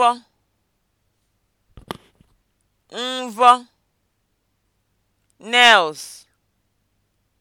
mvọ mvọ nails